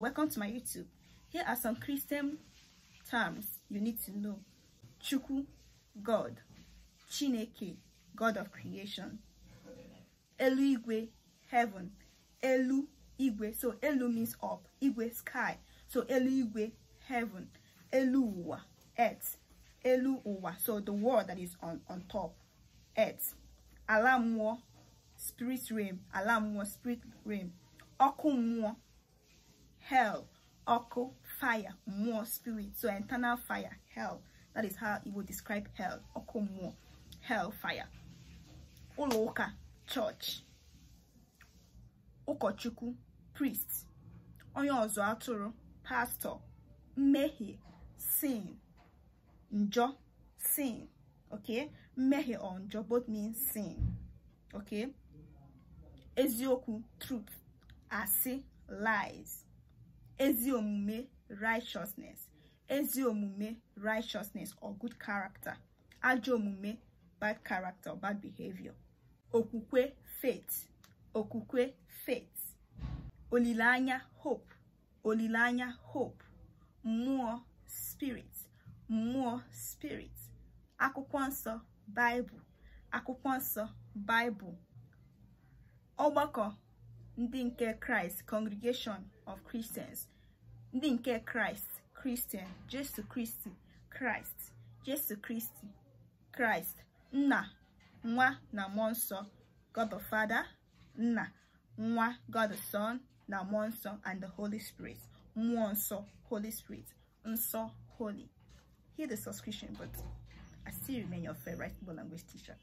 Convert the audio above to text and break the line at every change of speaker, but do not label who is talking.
Welcome to my YouTube. Here are some Christian terms you need to know. Chuku God. Chineke, God of creation. Eluigwe, heaven. Elu, Igwe. So Elu means up. Igwe, sky. So Eluigwe, heaven. Eluwa, earth. Eluwa, so the world that is on, on top. Earth. Alamwa spirit realm. Alamwa spirit realm. Okumwo, hell, oko, fire, more spirit. So internal fire, hell. That is how it would describe hell, oko, more, hell, fire. Uloka, church. Ukochuku, priest. Onye ọzọ atụrụ, pastor. Mehi, sin. Njọ, sin. Okay? Mehi or njọ both mean sin. Okay? Eziokwu, truth. Asị, lies. ezi omume righteousness ezi omume righteousness or good character ajọ omume bad character or bad behavior okwukwe faith okwukwe faith olileanya hope olileanya hope mmụọ spirit mmụọ spirit akwụkwọ nsọ baịbụl akwụkwọ nsọ baịbụl ọgbakọ ndị Christ, congregation of christians ndị Christ, christian jesu Christ Christ jesu Christ Christ nna nwa na mmụọ god the father nna nwa god the son na mmụọ and the holy spirit mmụọ holy spirit nsọ holy hear the subscription button i still remain your favorite language teacher